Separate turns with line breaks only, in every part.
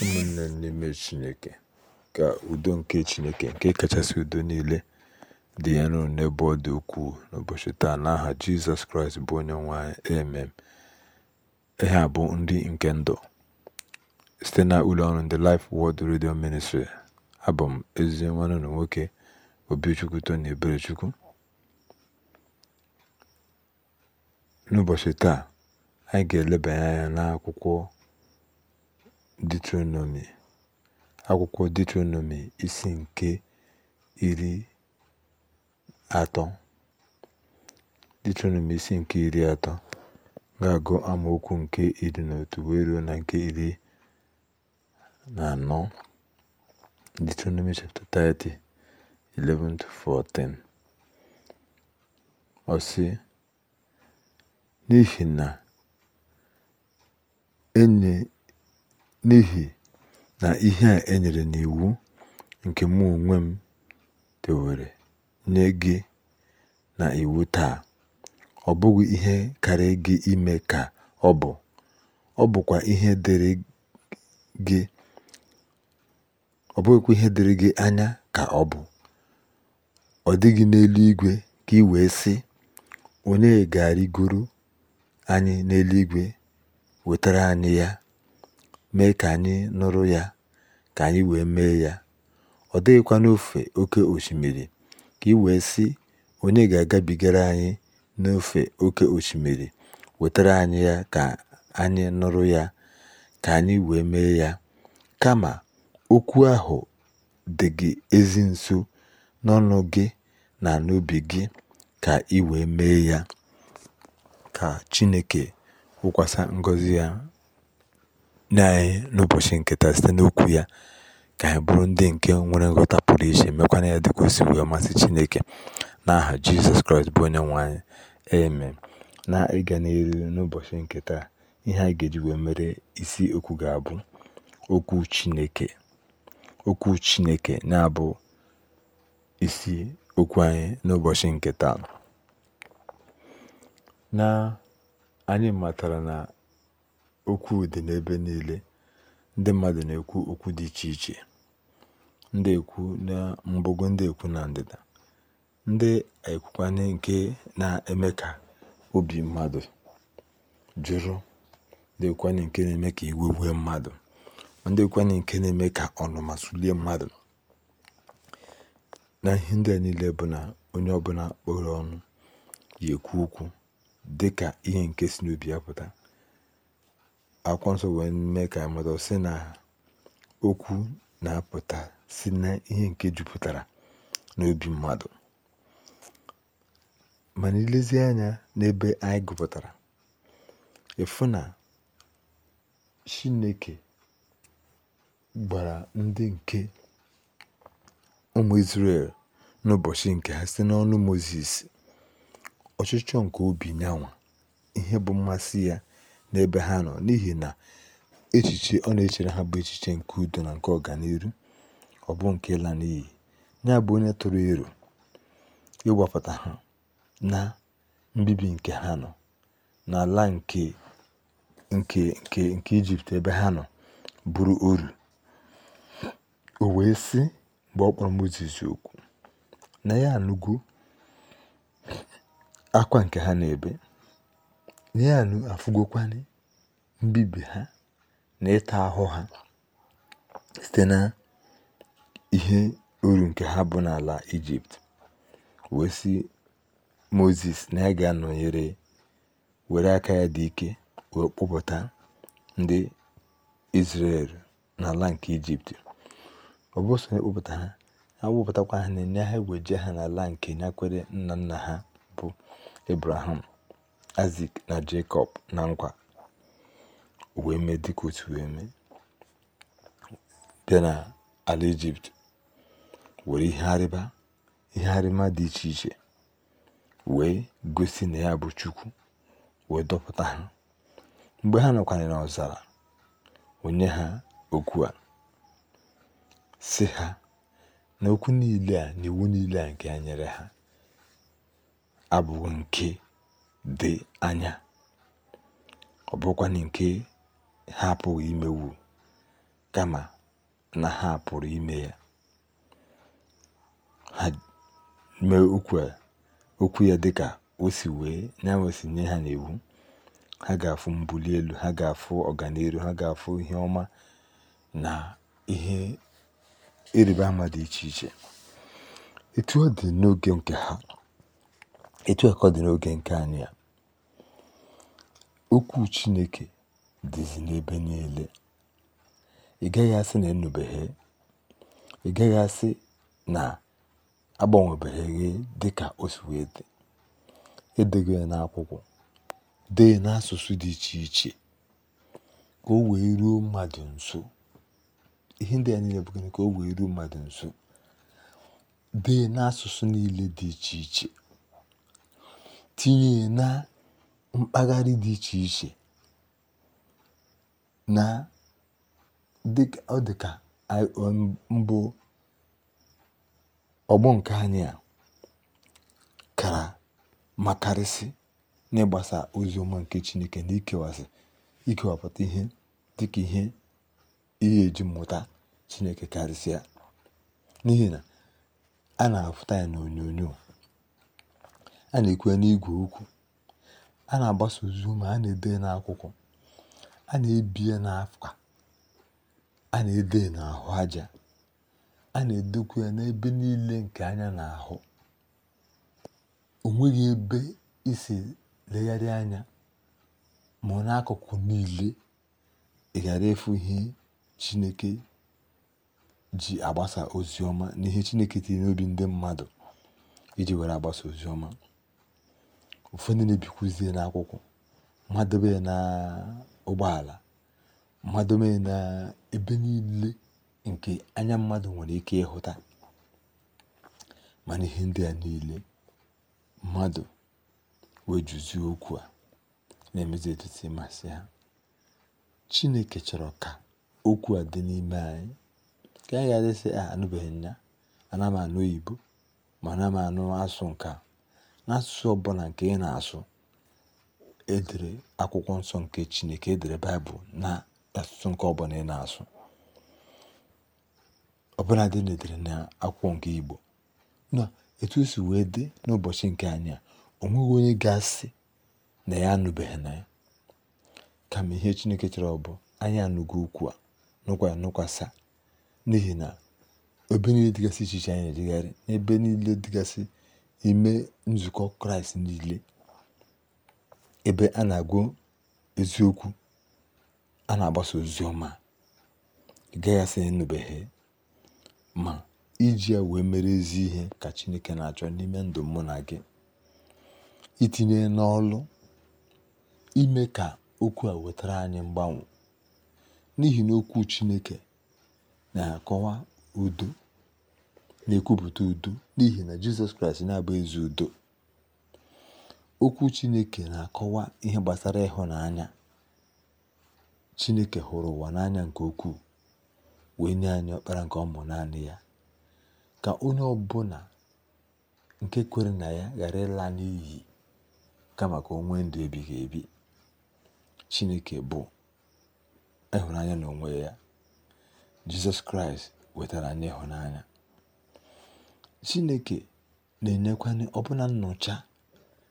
ụmụnne n'ime Chineke, ka udo nke Chineke nke kachasị udo niile dị elu n'ebe ọ dị ukwuu n'ụbọchị taa n'aha Jizọs Kraịst bụ onye nwanyị emem ihe a bụ nri nke ndụ site na ụlọ ọrụ ndị Life world Radio Ministry abụ m ezi nwanne na nwoke Obichukwu Tony Eberechukwu n'ụbọchị taa anyị ga-elebanye anya n'akwụkwọ Diuteronomi akwụkwọ Diuteronomi isi nke iri atọ isi nke iri atọ ga-agụ amaokwu nke iri na otu wee ruo na nke iri na anọ Deuteronomy chapter 30, 11-14 ọ n'ihi na enye n'ihi na ihe a enyere n'iwu nke mụ onwe m dewere nye gị na iwu taa ọ bụghị ihe karịrị gị ime ka ọ bụ, ọ bụkwa ihe dịrị gị anya ka ọ bụ. Ọ dịghị n'eluigwe ka ị wee sị, Onye ga-arịgoro anyị n'eluigwe wetara anyị ya. mee ka anyị nụrụ ya ka anyị wee mee ya ọ dịghịkwa n'ofe oke osimiri ka ị wee sị onye ga-agabigara anyị n'ofe oke osimiri wetara anyị ya ka anyị nụrụ ya ka anyị wee mee ya kama okwu ahụ dị gị ezi nso n'ọnụ gị na n'ubi gị ka ị wee mee ya ka Chineke kwukwasa ngozi ya nne anyị n'ụbọchị nke taa site n'okwu ya ka anyị bụrụ ndị nke nwere nghọta pụrụ iche mekwana ya dịka o si wee masị Chineke n'aha Jizọs Kraịst bụ onye nwe anyị eme na ịga n'elu n'ụbọchị nke ihe anyị ga-eji wee mere isi okwu ga-abụ okwu Chineke okwu Chineke na-abụ isi okwu anyị n'ụbọchị nke na anyị matara na okwu dị n'ebe niile ndị mmadụ na-ekwu okwu dị iche iche ndị ekwu na mgbago ndị ekwu na ndịda ndị ekwukwanye nke na-eme ka obi mmadụ jụrụ ndị ekwukwana nke na-eme ka iwe wee mmadụ ndị ekwukwanye nke na-eme ka ọnụma sulie mmadụ na ihe ndị a niile bụ na onye ọbụla kpọrọ ọnụ yi ekwu okwu dị ka ihe nke si n'obi ya pụta akwụkwọ nsọ wee mee ka mmadụ sị na okwu na-apụta si na ihe nke jupụtara n'obi mmadụ mana ilezi anya n'ebe anyị gụpụtara ịfụ na chineke gbara ndị nke ụmụ israel n'ụbọchị nke ha site n'ọnụ Mozis ọchịchọ nke obi nyanwa ihe bụ mmasị ya n'ebe ha nọ n'ihi na echiche ọ na-echere ha bụ echiche nke udo na nke ọganihu ọ bụ nke ịla n'iyi ya bụ onye tụrụ iro ịgwapụta ha na mbibi nke ha nọ n'ala nke nke nke nke ijipt ebe ha nọ bụrụ oru o wee sị mgbe ọ kpọrọ okwu na ya anụgo akwa nke ha na-ebe Nean afugokwane mbibi ha na ịta ahụ ha site na ihe uru nke ha bụ n'ala Ijipt wee si moses na ya ga-anọnyere were aka ya dị ike wee ndị Izrel n'ala nke Ijipt ọ bụ ha a ha na enye ha je ha n'ala nke nyakwere nna nna ha bụ Ebraham azik na Jekọb na nkwa o wee mee dị otu wee mee bịa na ala Ijipt were ihe arịba ihe arịma dị iche iche wee gosi na ya bụ Chukwu wee dọpụta ha mgbe ha nọkwara n'ọzara onye ha okwu a sị ha na okwu niile a na iwu niile a nke ya nyere ha abụghị nke dị anya ọ nke ha apụghị imewu kama na ha pụrụ ime ya ha mee okwu ya dịka o si wee nyanwe si nye ha n'iwu ha ga-afụ mbuli elu ha ga-afụ ọganihu ha ga-afụ ihe ọma na ihe ịrịba ama dị iche iche etu ọ dị n'oge nke ha etu a ka ọ dị n'oge nke anyị a okwu chineke dịzi n'ebe niile ị gaghị asị na enubeghe ị gaghị asị na agbanwebeghi dị ka o wee dị edego ya n'akwụkwọ dee n'asụsụ dị iche iche ka o wee ruo mmadụ nso ihe ndị a niile bụ gịnị ka o wee ruo mmadụ nso dee n'asụsụ niile dị iche iche tinye na mpaghara dị iche iche na dịka ọ ka mbụ ọgbọ nke anyị a kara makarịsị n'ịgbasa ozi ọma nke Chineke na ikewasị ikewapụta ihe dị ka ihe ihe eji mmụta Chineke karịsịa n'ihi na a na-afụta ya onyonyo. a na ekwe ya n'igwe okwu a na-agbasa ozu a na-ede ya n'akwụkwọ a na ebie ya a na-ede ya n'ahụ aja a na-edekwa ya n'ebe niile nke anya na-ahụ o ebe isi legharị anya ma n'akụkụ niile ị ghara efu ihe chineke ji agbasa ozi ọma na chineke tinye n'obi ndị mmadụ iji were agbasa ozi ọma ụfọdụ na-ebikwuzie n'akwụkwọ mmadụ ya na ụgbọala mmadụ ya na ebe niile nke anya mmadụ nwere ike ịhụta mana ihe ndị a niile mmadụ wee juzie okwu a na-emezi etiti ịmasị ha chineke chọrọ ka okwu a dị n'ime anyị ah, ka anyị ga-adịsị a anụbeghị nya ana anụ oyibo ma ana anụ asụ n'asụsụ ọbụla nke ị na-asụ e akwụkwọ nsọ nke Chineke e baịbụl na asụsụ nke ọbụla ị na-asụ ọbụla dị na-edere na akwụkwọ nke Igbo na etu o si wee dị n'ụbọchị nke anyị a o nweghị onye ga-asị na ya anụbeghị na ya kama ihe Chineke chọrọ bụ anyị anụgo okwu a nụkwa ya nụkwasa n'ihi na ebe niile dịgasị iche iche anyị na-ejegharị n'ebe niile dịgasị ime nzukọ kraịst niile ebe a na-agụ eziokwu a na-agbasa ozi ọma ị gaghị ma iji wee mere ezi ihe ka chineke na-achọ n'ime ndụ mụ na gị itinye n'ọlụ ime ka okwu a wetara anyị mgbanwe n'ihi na okwu chineke na-akọwa udo na-ekwupụta udo n'ihi na jizọs kraịst na-abụ ezi udo okwu chineke na-akọwa ihe gbasara ịhụnanya chineke hụrụ ụwa n'anya nke ukwuu wee nye anya ọkpara nke ọmụ naanị ya ka onye ọbụla nke kwere na ya ghara ịla n'iyi kama ka maka onwe ndụ ebighị ebi chineke bụ ịhụnanya na ya jizọs kraịst wetara anyị ịhụnanya Chineke na-enyekwanyị ọbụna nnọcha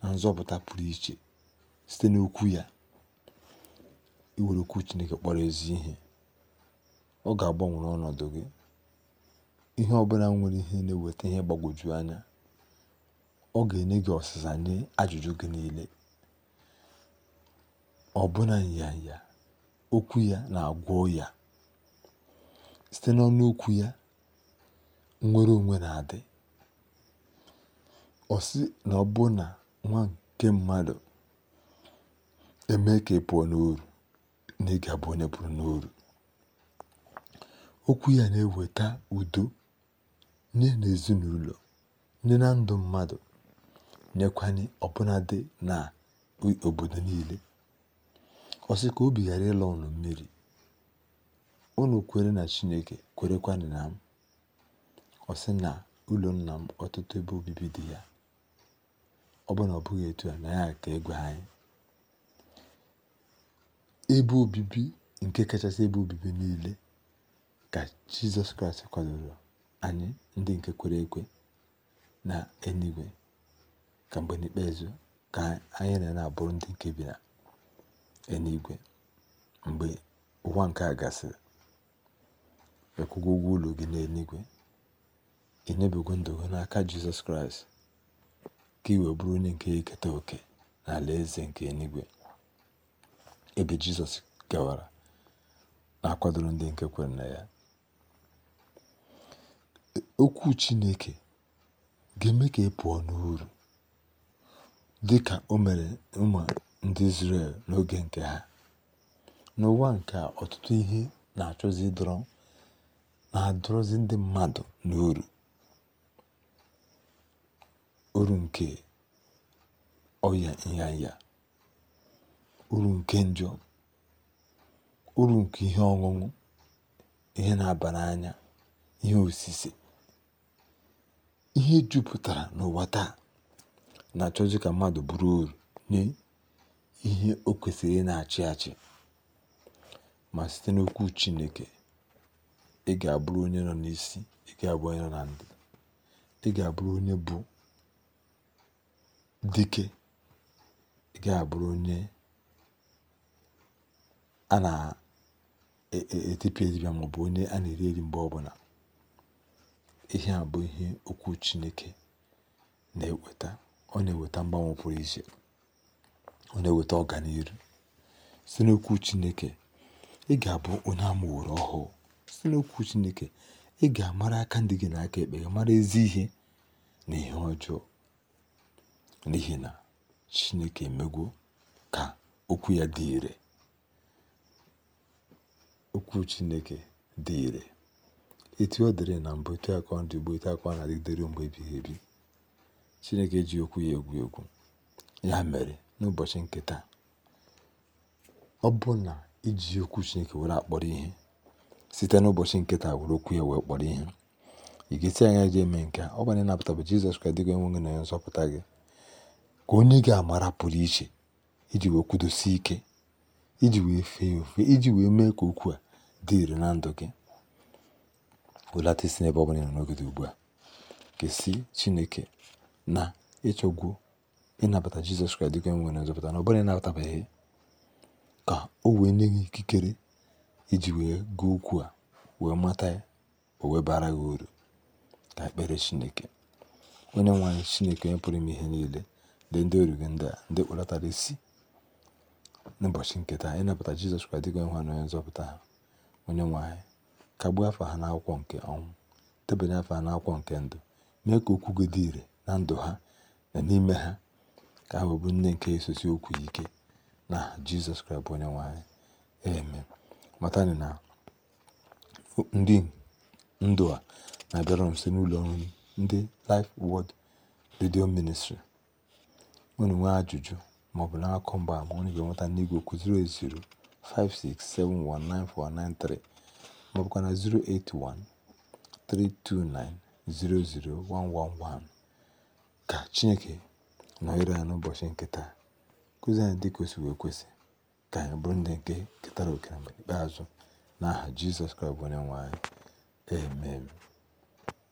na nzọpụta pụrụ iche site n'okwu ya iwere okwu Chineke kpọrọ ezi ihe ọ ga agbanwere ọnọdụ gị ihe ọbụla nwere ihe na-eweta ihe gbagwoju anya ọ ga-enye gị ọsịsa nye ajụjụ gị niile ọbụna nyanya okwu ya na-agwọ ya site n'ọnụ okwu ya nnwere onwe na-adị ọ sị na ọbụna nwa nke mmadụ emee ka ị pụọ n'oru na ị ga-abụ onye pụrụ n'oru, okwu ya na-eweta udo nye na ezinụlọ, nye na ndụ mmadụ nyekwanye ọbụnadị na obodo niile ọ sị ka obi ghara ịlọ ụlọ mmiri ụlọ kwere na chineke kwerekwanụ na ọ sị na ụlọ nna m ọtụtụ ebe obibi dị ya ọ bụ na ọ bụghị etu a na ya ka egwe anyị ebe obibi nke kachasị ebe obibi niile ka jizọs kraịst kwadoro anyị ndị nke kwere ekwe na enigwe ka mgbe n'ikpeazụ ka anyị na na-abụrụ ndị nke bi na enigwe mgbe ụwa nke a gasịrị ịkwụgo ụgwọ ụlọ gị n'enigwe enyebego ndụ n'aka jizọs kraịst ka i wee bụrụ onye nke ya eketa oke n'ala eze nke enigwe ebe jizọs gawara na-akwadoro ndị nke kwere na ya okwu chineke ga-eme ka ị e pụọ n'uru dị ka o mere ụmụ ndị Izrel n'oge nke ha n'ụwa nke ọtụtụ ihe na-achọzi na-adọrọzi ndị mmadụ n'uru uru ǹkè ọyà nyanya uru nke njọ uru nke ihe ọṅụṅụ ihe na-aba n'anya ihe osise ihe jupụtara n'ụwa taa na-achọzi ka mmadụ bụrụ oru nye ihe o kwesịrị na-achị achị ma site n'okwu chineke ị ga-abụrụ onye nọ n'isi ị ga-abụ onye nọ na ndị ị ga-abụrụ onye bụ dike ị ga-abụrụ onye a na-etipịa etipịa bụ onye a na-eri eri mgbe ọbụla ihe a bụ ihe okwu Chineke na-eweta ọ na-eweta mgbanwe pụrụ iche ọ na-eweta ọganiru site n'okwu Chineke ị ga-abụ onye amụworo ọhụụ site n'okwu Chineke ị ga-amara aka ndị gị na aka ekpe gị mara ezi ihe na ihe ọjọọ n'ihi na Chineke emegwo ka okwu ya dị ire okwu Chineke dị ire etu ọ dịrị na mbụ etu akọ ka ọ etu na-adịgidere mgbe ebighị ebi Chineke ji okwu ya egwu egwu ya mere n'ụbọchị nke ọ bụ na iji okwu Chineke were akpọrọ ihe site n'ụbọchị nke taa were okwu ya wee kpọrọ ihe ị ga-esi anya ga-eme nke a ọ bụ na ịnapụta bụ Jizọs Kraịst dịgo enwe gị na onye nzọpụta gị ka onye ga amara pụrụ iche iji wee kwudosi ike iji wee fee ofe iji wee mee ka okwu a dị ire na ndụ gị welata isi n'ebe ọ ị nọ n'oge ugbu a kesi chineke na ịchọgwu ịnabata jizọs kraịst dịka e nwere nzọpụta na ọbụla ịnabatabeghị ka o wee nye gị ikikere iji wee gụọ okwu a wee mata ya o wee bara gị uru ka ekpere chineke onye nwe chineke onye pụrụ ime ihe niile ndị oriri ndị a ndị kpọlatara isi n'ụbọchị nke taa ịnapụta jizọs kraịst dịka nwa na onye nzọpụta ha onye nwe anyị kagbuo afọ ha n'akwụkwọ nke ọnwụ debanye afọ ha n'akwụkwọ nke ndụ mee ka okwu gị dị ire na ndụ ha na n'ime ha ka ha bụ nne nke esosi okwu ike na jizọs kraịst bụ onye nwe anyị eme matani na ndị ndụ a na-abịara m site n'ụlọ ndị Life wod Radio Ministry unu nwee ajụjụ maọbụ na-akọ mgbaama onye ga-enweta n'igwe okwu 08056719493 maọbụkwa na 08132900111 ka Chineke nọnyere ya n'ụbọchị nke taa kụzi anyị dị ka wee kwesị ka anyị bụrụ ndị nke ketara oke na mgbe ikpeazụ n'aha Jizọs Kraịst bụ onye nwe anyị amen